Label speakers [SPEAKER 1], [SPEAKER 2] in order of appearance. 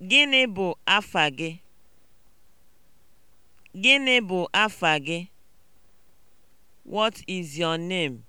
[SPEAKER 1] Gịnị bụ afa gị? Gịnị bụ afa gị? What is your name?